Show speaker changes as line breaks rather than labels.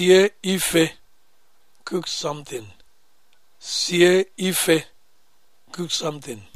sie ife cook something sie ife cook something